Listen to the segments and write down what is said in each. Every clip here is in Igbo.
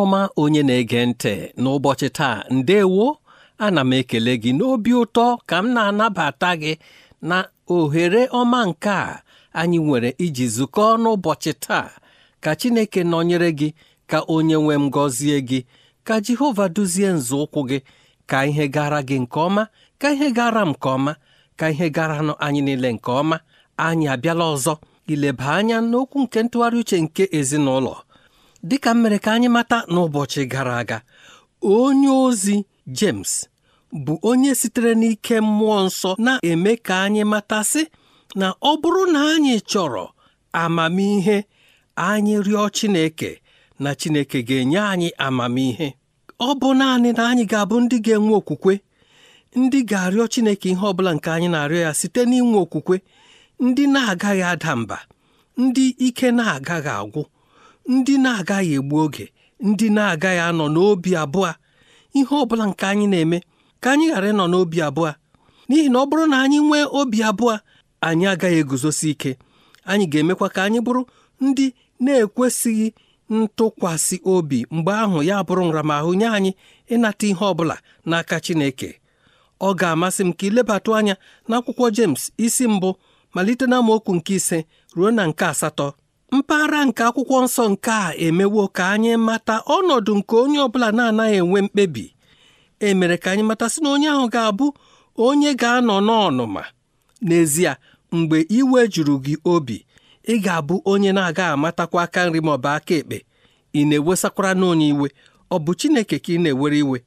ọma onye na-ege ntị n'ụbọchị taa ndewo ana m ekele gị n'obi ụtọ ka m na-anabata gị na ohere ọma nke a anyị nwere iji zukọọ n'ụbọchị taa ka Chineke nọnyere gị ka onye nwe m gọzie gị ka Jehova duzie nzọụkwụ gị ka ihe gara gị nke ọma ka ihe gara m nke ọma ka ihe garanụ anyị niile nke ọma anyị abịala ọzọ ileba anya n'okwu nke ntụgharị uche nke ezinụlọ dịka m mere ka anyị mata n'ụbọchị gara aga onye ozi James bụ onye sitere n'ike mmụọ nsọ na-eme ka anyị matasị na ọ bụrụ na anyị chọrọ amamihe anyị rịọ Chineke na Chineke ga-enye anyị amamihe ọ bụ naanị na anyị ga-abụ ndị ga-enwe okwukwe ndị ga-arịọ Chineke ihe ọ bụla nke anyị na-arịọ ya site n'inwe okwukwe ndị na-agaghị ada mba ndị ike na-agaghị agwụ ndị na-agaghị egbu oge ndị na-agaghị anọ n'obi abụọ ihe ọ bụla nke anyị na-eme ka anyị ghara ịnọ n'obi abụọ n'ihi na ọ bụrụ na anyị nwee obi abụọ anyị agaghị eguzosi ike anyị ga-emekwa ka anyị bụrụ ndị na-ekwesịghị ntụkwasị obi mgbe ahụ ya bụrụ nramahụ nye anyị ịnata ihe ọ bụla n'aka Chineke ọ ga-amasị m ka ilebatụ anya n'akwụkwọ jems isi mbụ malite na amaokwu nke ise ruo na nke asatọ mpaghara nke akwụkwọ nsọ nke a emewo ka anyị mata ọnọdụ nke onye ọbụla na-anaghị enwe mkpebi e mere ka anyị mata sị na onye ahụ ga-abụ onye ga-anọ n'ọnụma n'ezie mgbe iwe juru gị obi ị ga-abụ onye na-aga amatakwa aka nri ma ọ bụ aka ekpe ị na-ewesakwara n'onye iwe ọ bụ Chineke ka ị na-ewere iwe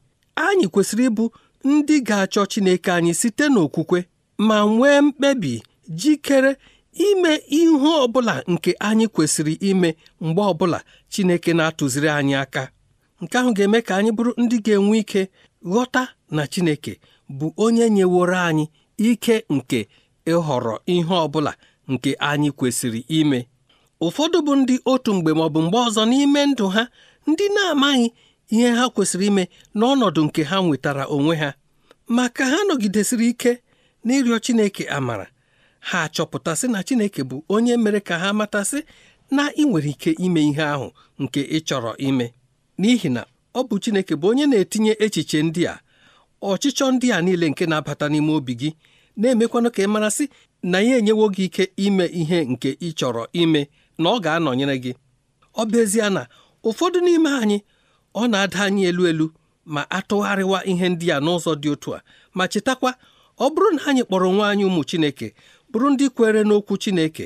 anyị kwesịrị ịbụ ndị ga-achọ Chineke anyị site n'okwukwe ma nwee mkpebi jikere ime ihe ọbụla nke anyị kwesịrị ime mgbe ọbụla Chineke na-atụziri anyị aka nke ahụ ga-eme ka anyị bụrụ ndị ga-enwe ike ghọta na Chineke bụ onye nyeworo anyị ike nke ịhọrọ ihe ọbụla nke anyị kwesịrị ime ụfọdụ bụ ndị otu mgbe maọbụ mgbe ọzọ n'ime ndụ ha ndị na-amaghị ihe ha kwesịrị ime n'ọnọdụ nke ha nwetara onwe ha ma ka ha nọgidesịrị ike n'ịrịọ Chineke amara ha achọpụtasị na Chineke bụ onye mere ka ha matasị na ị nwere ike ime ihe ahụ nke ị chọrọ ime n'ihi na ọ bụ Chineke bụ onye na-etinye echiche ndị a ọchịchọ ndị a niile nke na-abata n'ime obi gị na-emekwanụ ka ị marasị na ya enyewo gị ike ime ihe nke ị chọrọ ime na ọ ga-anọnyere gị ọ bụ ezie na ụfọdụ n'ime anyị ọ na-ada anyị elu elu ma atụgharịwa ihe ndị a n'ụzọ dị otu a ma chetakwa ọ bụrụ na anyị kpọrọ nwa anyị ụmụ Chineke bụrụ ndị kwere n'okwu Chineke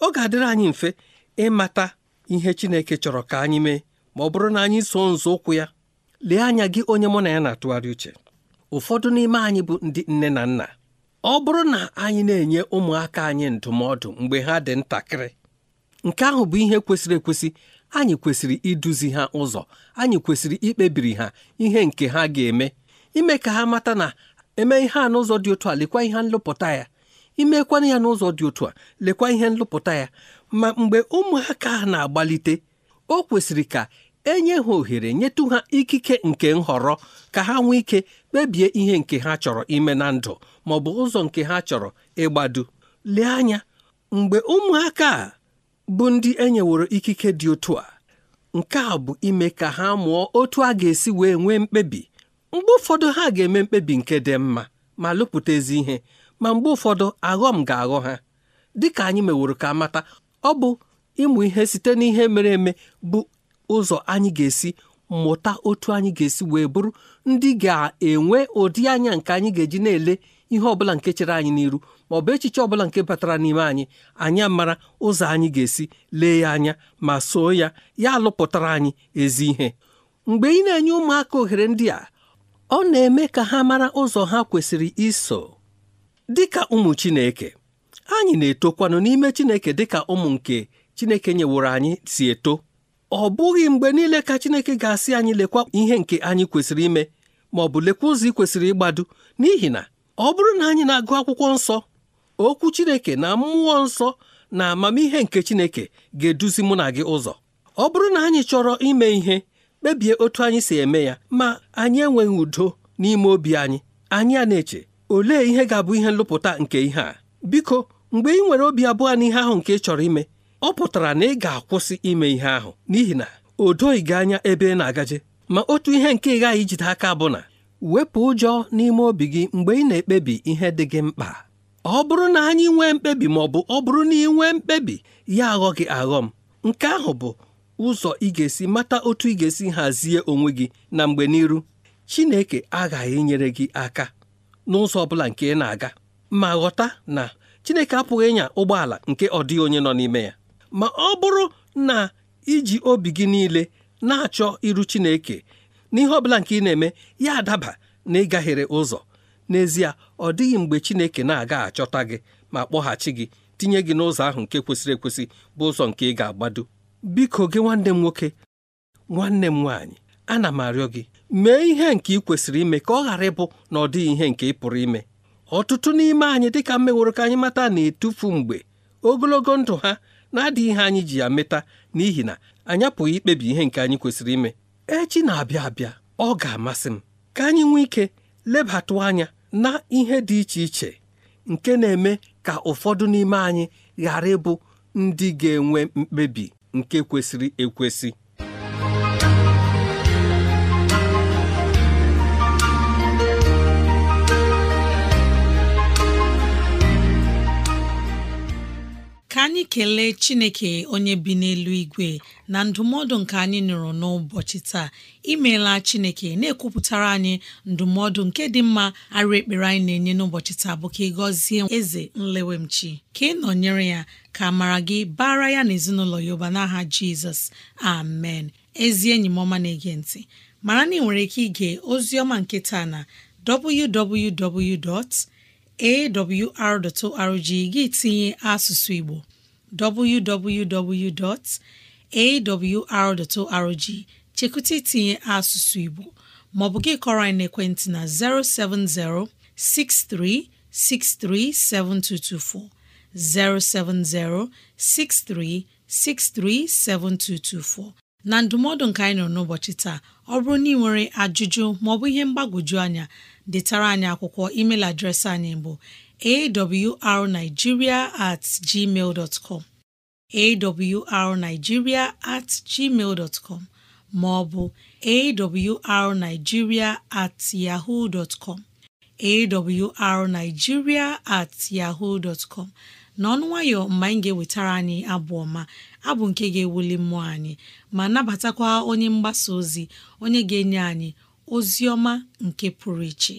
ọ ga-adịrị anyị mfe ịmata ihe Chineke chọrọ ka anyị mee ma ọ bụrụ na anyị so nzọụkwụ ya lee anya gị onye mụ na ya na-atụgharị uche ụfọdụ n'ime anyị bụ ndị nne na nna ọ bụrụ na anyị na-enye ụmụaka anyị ndụmọdụ mgbe ha dị ntakịrị nke ahụ bụ ihe kwesịrị ekwesị anyị kwesịrị iduzi ha ụzọ anyị kwesịrị ikpebiri ha ihe nke ha ga-eme ime ka ha mata na eme ihe a n'ụzọ dị otu a lekwa ihe nlụpụta ya imekwana ya n'ụzọ dị otu a lekwa ihe nlụpụta ya ma mgbe ụmụaka na-agbalite o kwesịrị ka enye ha ohere nyetụ ha ikike nke nhọrọ ka ha nwee ike kpebie ihe nke ha chọrọ ime na ndụ ma ọ bụ ụzọ nke ha chọrọ ịgbado lee anya mgbe ụmụaka a bụ ndị enyeworo ikike dị otu a nke a bụ ime ka ha mụọ otu a ga-esi wee nwee mkpebi mgbe ụfọdụ ha ga-eme mkpebi nke dị mma ma lụpụta ezi ihe ma mgbe ụfọdụ aghọm ga-aghọ ha dịka anyị meworo ka mata ọ bụ ịmụ ihe site n'ihe mere eme bụ ụzọ anyị ga-esi mụta otu anyị ga-esi wee bụrụ ndị ga-enwe ụdị anya nke anyị ga-eji na-ele ihe ọbụla nke chere anyị n'iru ma ọ bụ echiche ọbụla nke batara n'ime anyị anyị mara ụzọ anyị ga-esi lee ya anya ma soo ya ya alụpụtara anyị ezi ihe mgbe ị na-enye ụmụaka ohere ndị a ọ na-eme ka ha mara ụzọ ha kwesịrị iso dịka ụmụ Chineke anyị na-etokwanụ n'ime Chineke dịka ụmụ nke Chineke nyeworo anyị si eto ọ bụghị mgbe niile ka Chineke ga-asị anyị lekwa ihe nke anyị kwesịrị ime ma ọ bụ lekwa ụzọ ị kwesịrị ịgbado n'ihi na ọ bụrụ na anyị na-agụ akwụkwọ nsọ okwu Chineke na mmụọ nsọ na amamihe nke Chineke ga-eduzi mụ na gị ụzọ ọ bụrụ na anyị chọrọ ime ihe kpebie otu anyị si eme ya ma anyị enweghị udo n'ime obi anyị anyị a na-eche olee ihe ga-abụ ihe nlụpụta nke ihe a biko mgbe ị nwere obi abụọ n'ihe ahụ nke ị chọrọ ime ọ pụtara na ị ga-akwụsị ime ihe ahụ n'ihi na o doghị gị anya ebe ị na-agaje ma otu ihe nke ị ghaghị ijide aka bụ na wepụ ụjọ n'ime obi gị mgbe ị na-ekpebi ihe dị gị mkpa ọ bụrụ na anyị nwee mkpebi ma ọ bụ ọ bụrụ na ị nwee mkpebi ya aghọ gị aghọ m nke ahụ bụ ụzọ ị ga-esi mata otu ị ga-esi hazie onwe gị na mgbe n'iru Chineke aghaghị inyere gị aka n'ụzọ ọ bụla nke ị na-aga ma ghọta na Chineke apụghị ịnya ụgbọala nke ọ dịghị onye nọ n'ime ya ma ọ bụrụ na iji obi gị niile na-achọ iru Chineke n'ihe ọ bụla nke ị na-eme ya adaba na ịgaghere ụzọ n'ezie ọ dịghị mgbe Chineke na-aga achọta gị ma kpọghachi gị tinye gị n'ụzọ ahụ nke kwesịrị ekwesị bụ ụzọ nke ị ga-agbado biko gị nwanne m nwoke nwanne m nwaanyị ana m arịọ gị mee ihe nke ị kwesịrị ime ka ọ ghara ịbụ na ọ dịghị ihe nke ị pụrụ ime ọtụtụ n'ime anyị dịka mmeworo ka anyị mata na-etufu mgbe ogologo ndụ ha na-adịghị ihe anyị ji ya meta n'ihi na anyị apụghị ikpebi ihe nke anyị kwesịrị ime echi na-abịa abịa ọ ga-amasị m ka anyị nwee ike lebatụ anya na ihe dị iche iche nke na-eme ka ụfọdụ n'ime anyị ghara ịbụ ndị ga-enwe mkpebi nke kwesịrị ekwesị anyị kelee chineke onye bi n'elu igwe na ndụmọdụ nke anyị nụrụ n'ụbọchị taa imeela chineke na-ekwupụtara anyị ndụmọdụ nke dị mma arụ ekpere anyị na-enye n'ụbọchị taa bụ ka ị gọzie eze nlewemchi ka ị nọnyere ya ka mara gị bara ya na ezinụlọ ya n'aha jizọs amen ezi enyi m ọma na-ege ntị mara na ị nwere ike ige ozi ọma nke taa na www awr.org gị tinye asụsụ Igbo www.awr.org chekwụta itinye asụsụ Igbo maọbụ gị kọrọ anyị n'ekwentị na 070 6363 7224 070 6363 7224 na ndụmọdụ nka anyị nọ n'ụbọchị taa ọ bụrụ na ị nwere ajụjụ maọbụ ihe mgbagwoju anya detara anyị akwụkwọ email adreesị anyị bụ awrnigeria at com awrnigeria at ma ọ bụ awrnigeria at yaho com awrnigeria at com n'ọnụ nwayọ mgbe anyị ga-ewetara anyị abụ ọma abụ nke ga-ewuli mmụọ anyị ma nabatakwa onye mgbasa ozi onye ga-enye anyị ozi ọma nke pụrụ iche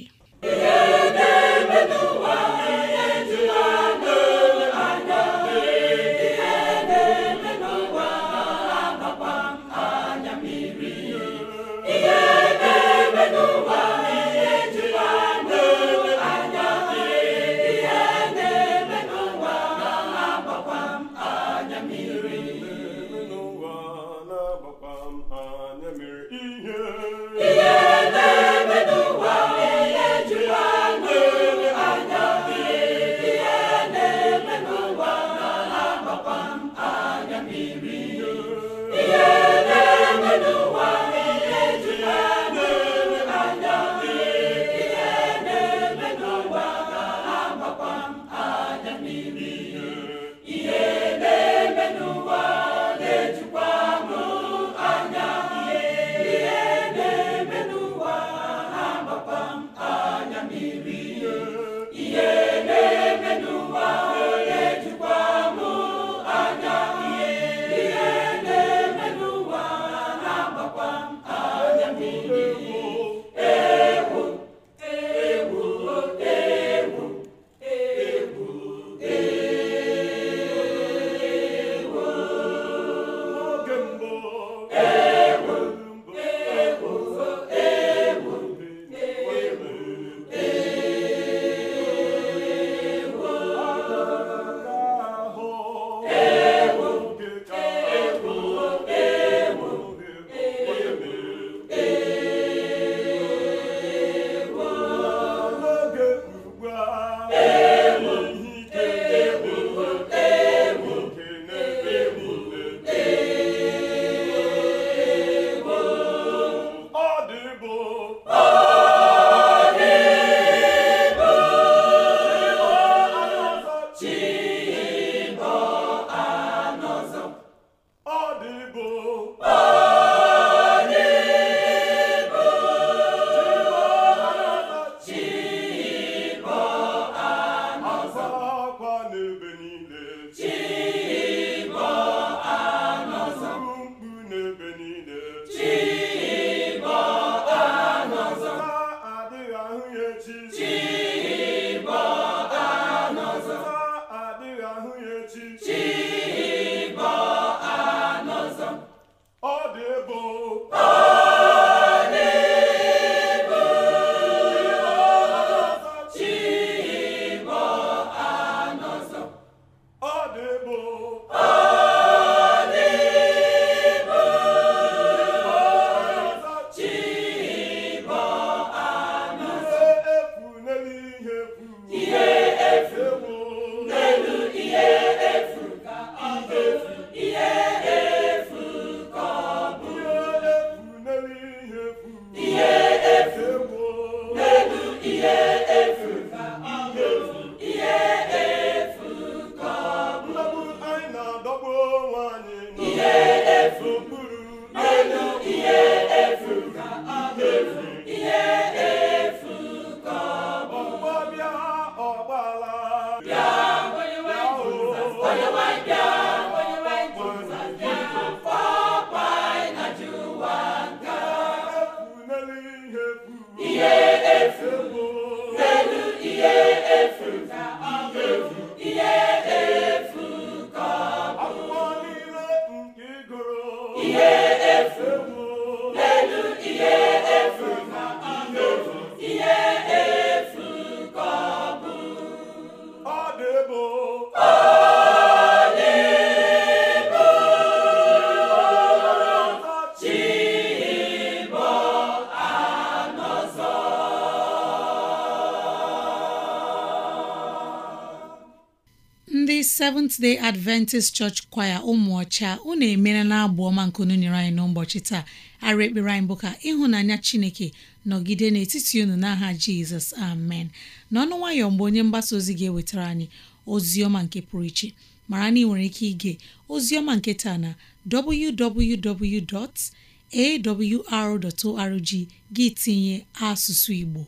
seventh Adventist Church kwaya ụmụọcha unu emere na abụ ọma nke unu nyere anyị n'ụbọchị taa ara ekpere anyị bụ ka ịhụnanya Chineke nọgide n'etiti unu n'aha Jizọs amen n'ọnụ nwayọọ mgbe onye mgbasa ozi ga-ewetara anyị ozi ọma nke pụrụ iche mara na ị nwere ike ige ozi ọma nke taa na www.awr.org gị tinye asụsụ Igbo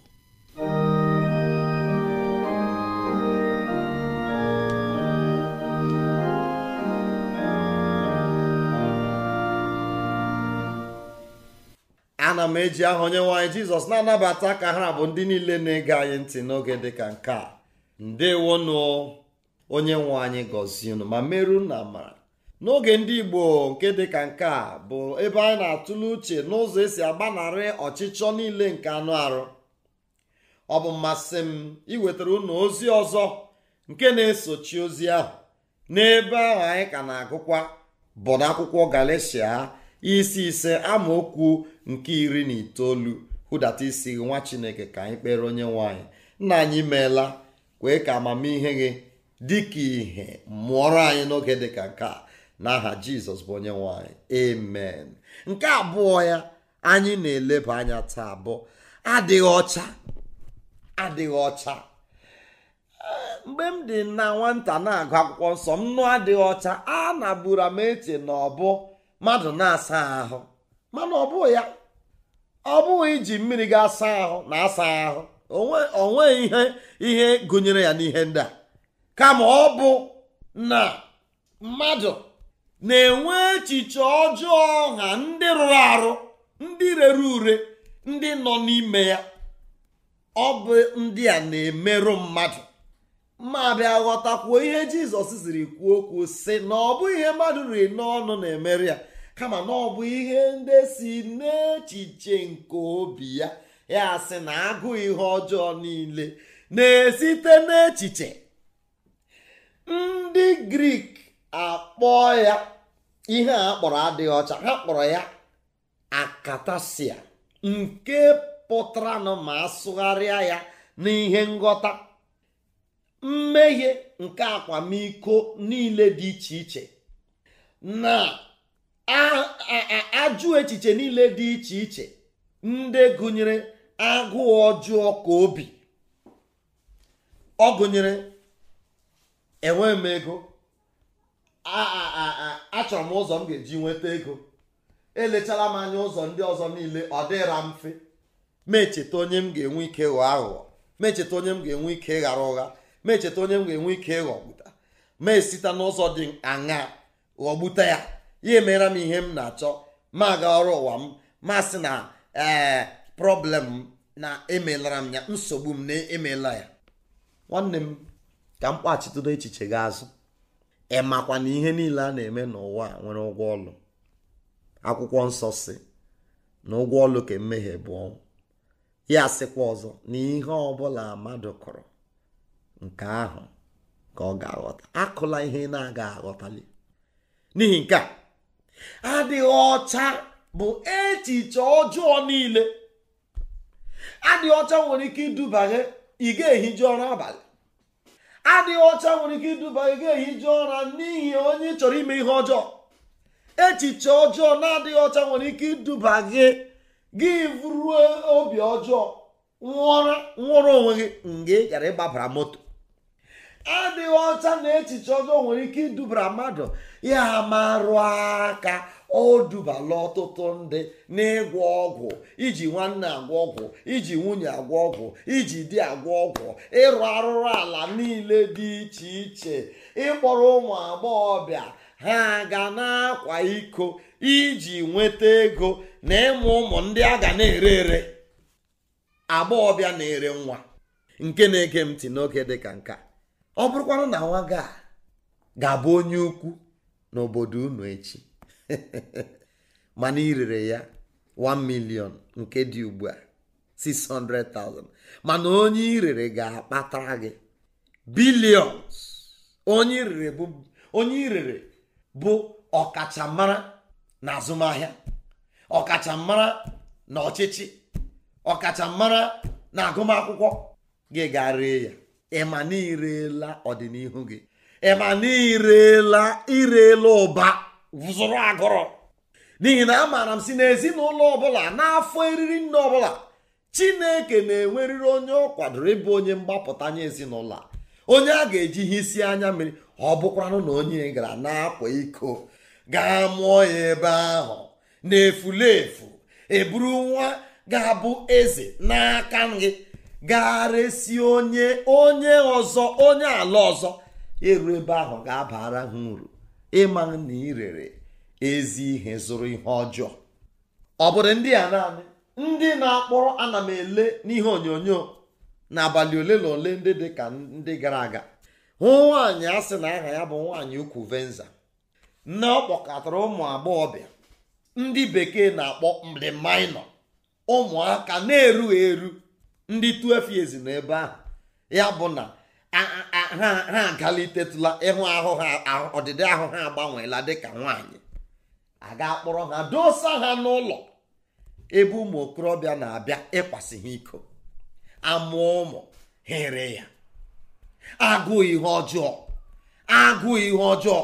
ana m eji aha onye nwe anyị jizọs na-anabata ka ha bụ ndị niile na-ege anyị ntị n'oge dịka nke a ndewonụ onye nwe anyị gọzie ma meru na mara n'oge ndị igbo nke dịka nke a bụ ebe anyị na-atụle uche n'ụzọ esi agbanarị ọchịchọ niile nke anụ arụ ọ bụ mmasị m iwetara unu ozi ọzọ nke na-esochi ozi ahụ n'ebe ahụ anyị ka na-agụkwa bụ n'akwụkwọ galesia isi ise amaokwu nke iri na itoolu hụdata isi nwa chineke ka anyị kpere onye nwanyị nna anyị meela kwee ka amamihe gị dịka ihe mụọrọ anyị n'oge dịka nke a n'aha jizọs bụ onye nwanyị amen nke abụọ ya anyị na-eleba anya taa bụ adịghị ọcha adịghị ọcha mgbe m dị na nwata na-agụ akwụkwọ nsọ m nụ adịghị ọcha a na buru m eche na ọ mmadụ na-asa ahụ mana ọ bụghị ya ọ bụghị iji mmiri ga-asa ahụ na-asa ahụ onwe ihe ihe gụnyere ya n'ihe ndị a kama ọ bụ na mmadụ na-enwe echiche ọjọọ ọha ndị rụrụ arụ ndị rere ure ndị nọ n'ime ya ọ bụ ndị a na-emerụ mmadụ ma bịa ghọtakwuo ihe jizọs ziri kwuo okwu si na ọ bụ ihe mmadụ riri n'ọnụ na-emeri ya kama na ọ bụ ihe ndị si n'echiche nke obi ya ya sị na agụ ihe ọjọọ niile na-esite n'echiche ndị grik akpọ ya ihe a kpọrọ adịghị ọcha ha kpọrọ ya akatasia nke pụtara na ma asụgharịa ya n'ihe nghọta mmehie nke akwamiko niile dị iche iche na ajụ echiche niile dị iche iche ndị gụnyere agụụ ọjọọ ka obi ọ gụnyere enwe m ego achọrọ m ụzọ m ga-eji nweta ego elechara m anya ụzọ ndị ọzọ niile ọ dịra mfe mecheta onye m ga-enwe ike ghọọ aghụghọ mecheta onye m ga-enwe ike ghara ụgha ma echeta onye m ga-enwe ike ịghọgbuta ma esita n'ụzọ dị aṅa ghọgbute ya ya emeera m ihe m na-achọ ma gaa ọrụ ụwa m ma sị na ee eh, prọblem na emelara m ya nsogbu m na emela ya nwanne m ka m kpachitodo echiche gị azụ ị makwa na ihe niile a na-eme n'ụwa nwere ụgwọ ọlụ akwụkwọ nsọ si na ụgwọ ọlụ ka mmehie bụ ọnwụ ya sịkwa ọzọ na ihe ọbụla mmadụ kụrụ nke ahụ ka ọ ga-aghọta akụla ihe na-aga aghọtali n'ihi nke a adịghị ọcha bụ echiche ọjọọ niile adịghị ọcha nwere ike iduba gị ị ga-ehiju ọrụ abalị adịghị ọcha nwere ike iduba gị ga-ehiju ụra n'ihi onye chọrọ ime ihe ọjọọ echiche ọjọọ na-adịghị ọcha nwere ike iduba gị gị vụruo obi ọjọọ nwụrụ onwe gị mgbe ị gara ịgbabara moto adịghị ọcha na echiche ọjọọ nwere ike idubara mmadụ ya marụ aka ọ dubala ọtụtụ ndị n'ịgwọ ọgwụ iji nwanne agwọ ọgwụ iji nwunye agwọ ọgwụ iji di agwọ ọgwụ ịrụ arụrụ ala niile dị iche iche ịkpọrọ ụmụ agbọghọbịa ha ga na-akwa iko iji nweta ego na ịmụ ụmụ ndị a ga na-ere ere agbọghọbịa na-ere nwa nke na-ege ntị n'oge dịka nka ọ bụrụkwanụ na nwa a ga-abụ onye ukwu n'obodo unu echi mana irere ya 1 million nke dị ugbu a 600,000 mana onye irere ga-akpatara gị bilions onye irere bụ onye irere bụ ọkachamara na azụmahịa ọkachamara na ọchịchị ọkachamara na agụmakwụkwọ gị ga ree ya ịma na ọdịnihu gị ịma na irela irela ụba zụrụ agụrụ n'ihi na amaara m si n'ezinụlọ ọbụla n'afọ eriri nne ọbụla chineke na enweriri onye ọ kwadoro ịbụ onye mgbapụta nye ezinụlọ a onye a ga-eji ihe isi anya mmiri ọ bụkwanụ na onye gara na-akwa iko gaa mụọ ya ebe ahụ na efu eburu nwa ga-abụ eze n'aka gị gagharịsị onye onye ọzọ onye ala ọzọ eru ebe ahụ ga-abara ha uru ịma na irere ezi ihe zụrụ ihe ọjọọ ọ bụrụ ndị a naanị ndị na-akpọrọ ana m ele n'ihe onyonyo n'abalị ole na ole ndị dị ka ndị gara aga hụ nwaanyị a sị na aha ya bụ nwaanyị ukwu venza nne ọ kpọkọtara ụmụ agbọghọbịa ndị bekee na-akpọ mrimainọ ụmụaka na-erughị eru ndị 12 years nọ ebe ahụ ya bụ na ha agalitetụla ịhụ ahụ ha ọdịdị ahụ ha agbanweela dịka nwaanyị a ga-akpọrọ ha dosa ha n'ụlọ ebe ụmụ okorobịa na-abịa ịkwasị ha iko amụọ ụmụ here ya agụụ ihe ọjọọ agụụ ihe ọjọọ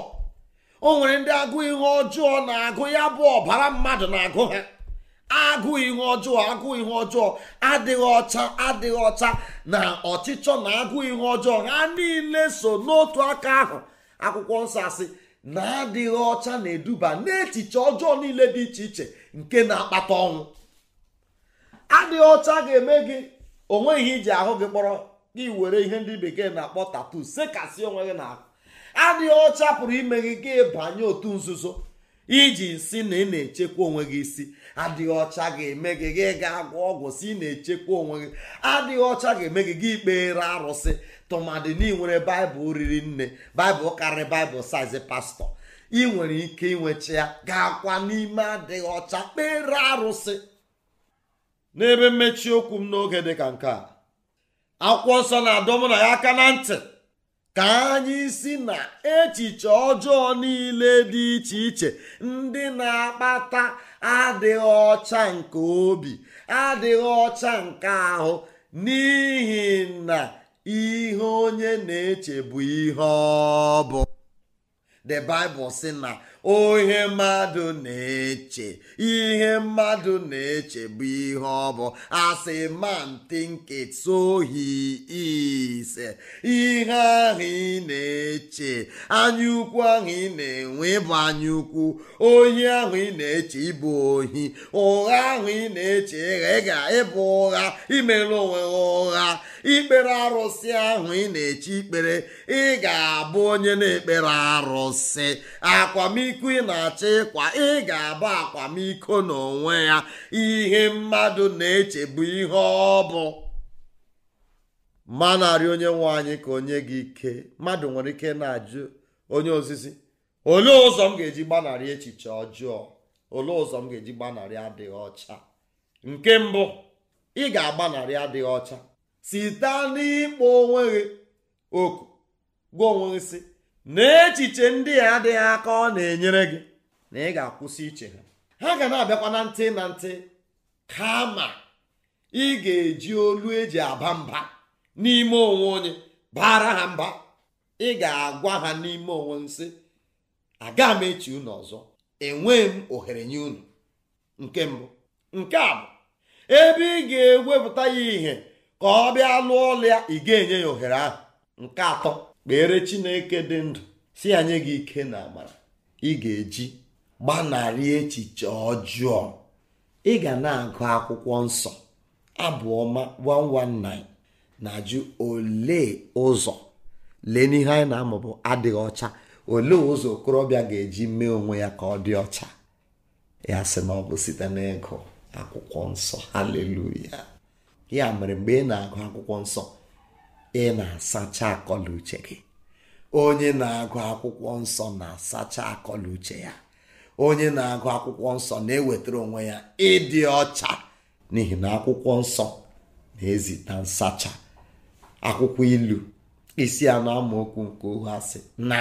o nwere ndị agụụ ihe ọjọọ na-agụ ya bụ ọbara mmadụ na-agụ ha agụụ ihe ọjọọ agụụ ihe ọjọọ adịghị ọcha adịghị ọcha na ọchịchọ na agụụ ihe ọjọọ ha niile so n'otu aka ahụ akwụkwọ nsọ asị na-adịghị ọcha na-eduba n'echiche ọjọọ niile dị iche iche nke na-akpata ọnwụ adịghị ọcha ga-eme gị onwe ihe iji ahụ gị kpọrọ gị were ihe ndị bekee na-akpọ tatu sekasị onwe gị na adịghị ọcha pụrụ ime gị gị banye otu nzuzo iji si na ị na-echekwa onwe gị isi adịghị ọcha ga-eme gị gị ga-agwọ ọgwụ si na-echekwa onwe gị adịghị ọcha ga-eme gị gị ikpere arụsị tụmadị na baịbụl riri nne baịbụl karịrị baịbụl saizi pastọ ị nwere ike inwecha ya ga-akwa n'ime adịghị ọcha kpere arụsị n'ebe mmechi okwu m n'oge dị ka nke a akwụkwọ nsọ na-adọ mụ na ya aka na ntị ka anyị si na echiche ọjọọ niile dị iche iche ndị na-akpata adịghị ọcha nke obi adịghị ọcha nke ahụ n'ihi na ihe onye na-eche bụ ihe ọ bụ the bible sị na ihe mmadụ na-eche ihe mmadụ na-eche bụ ihe ọ bụ asị man think it so ihe ahụ ị na-eche anyaukwu ahụ ị na-enwe bụ ukwu ohi ahụ ị na-eche ịbụ ohi ụgha ahụ ị na-eche ịgha ịga ịbụ ụgha imere onwe ụgha ikpere arụsị ahụ ị na-eche ikpere ị ga-abụ onye na-ekpere arụsị sị akwamiko ị na-achọ ịkwa ị ga-abụ akwamiko n'onwe ya ihe mmadụ na-echebu ihe ọ bụ ma narị onye nwe anyị ka onye gị ike mmadụ nwere ike na-ajụ onye ozizi olee ụzọ m ga-eji gbanarị echiche ọjọọ olee ụzọ m ga-eji gbanarị adịghị ọcha nke mbụ ị ga-agbanarị adịghị ọcha site n'ịkpọ onwe gị oku gwa onwe gị echiche ndị a adịghị aka ọ na-enyere gị na ị ga-akwụsị iche ha ha ga na-abịakwa na ntị na ntị kama ị ga-eji olu eji aba mba n'ime onwe onye bara ha mba ị ga-agwa ha n'ime onwe nsị aga m echi unu ọzọ enweghị m ohere nye unu nke mbụ nke a bụ ebe ị ga-ewepụta ya ihe ka ọ bịa lụọ ọlụ ị ga-enye ya ohere ahụ nke atọ kpere chineke dị ndụ si ya gị ike na amara ị ga-eji gbanarị echiche ọjụọ ị ga na-agụ akwụkwọ nsọ abụ ọma 119 na-ajụ ole ụzọ lee n'ihe anyị na-amụ bụ adịghị ọcha ole ụzọ okorobịa ga-eji mee onwe ya ka ọ dị ọcha ya sị na ọ bụ site n'ịgụ akwụkwọ nsọ haleluya ya mere mgbe ị na-agụ akwụkwọ nsọ ị na-asacha uche gị onye na-agụ akwụkwọ nsọ na-asacha uche ya onye na-agụ akwụkwọ nsọ na-ewetara onwe ya ịdị ọcha n'ihi na akwụkwọ nsọ na-ezita nsacha akwụkwọ ilu isi anọ amaokwu nke asị na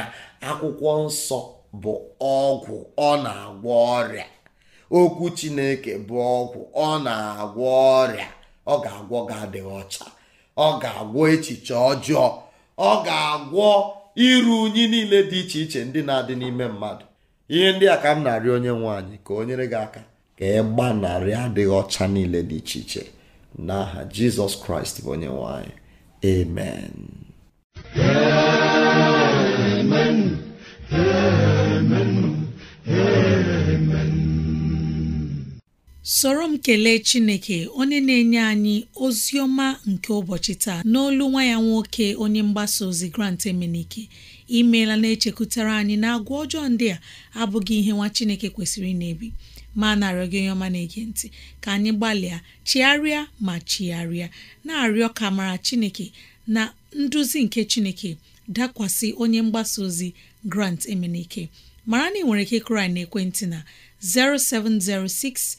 akwụkwọ nsọ bụ ọgwụ ọ na-agwọ ọrịa okwu chineke bụ ọgwụ ọ na-agwọ ọrịa ọ ga-agwọ gị adịghị ọcha ọ ga-agwọ echiche ọjọọ ọ ga-agwọ iru unyi niile dị iche iche ndị na-adị n'ime mmadụ ihe ndị a ka m na onye nwanyị ka o nyere gị aka ka ị gbanarị adịghị ọcha niile dị iche iche n'aha Jizọs Kraịst bụ onye nwanyị amen soro m kelee chineke onye na-enye anyị ozi ọma nke ụbọchị taa n'olu nwa ya nwoke onye mgbasa ozi grant emenike imeela na-echekwutara anyị na agwa ọjọọ ndị a abụghị ihe nwa chineke kwesịrị na-ebi ma na-arịọ gị onye ọma na-ege ntị ka anyị gbalịa chigharịa ma chigharịa na-arịọ ka mara chineke na nduzi nke chineke dakwasị onye mgbasa ozi grant emenike mara na ị nwere ike kụrụ na ekwentị na 0706